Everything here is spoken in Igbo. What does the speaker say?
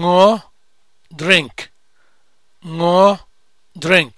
ṅụọ drink ṅụọ drink